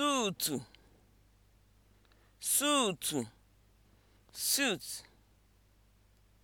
suutu suutu suit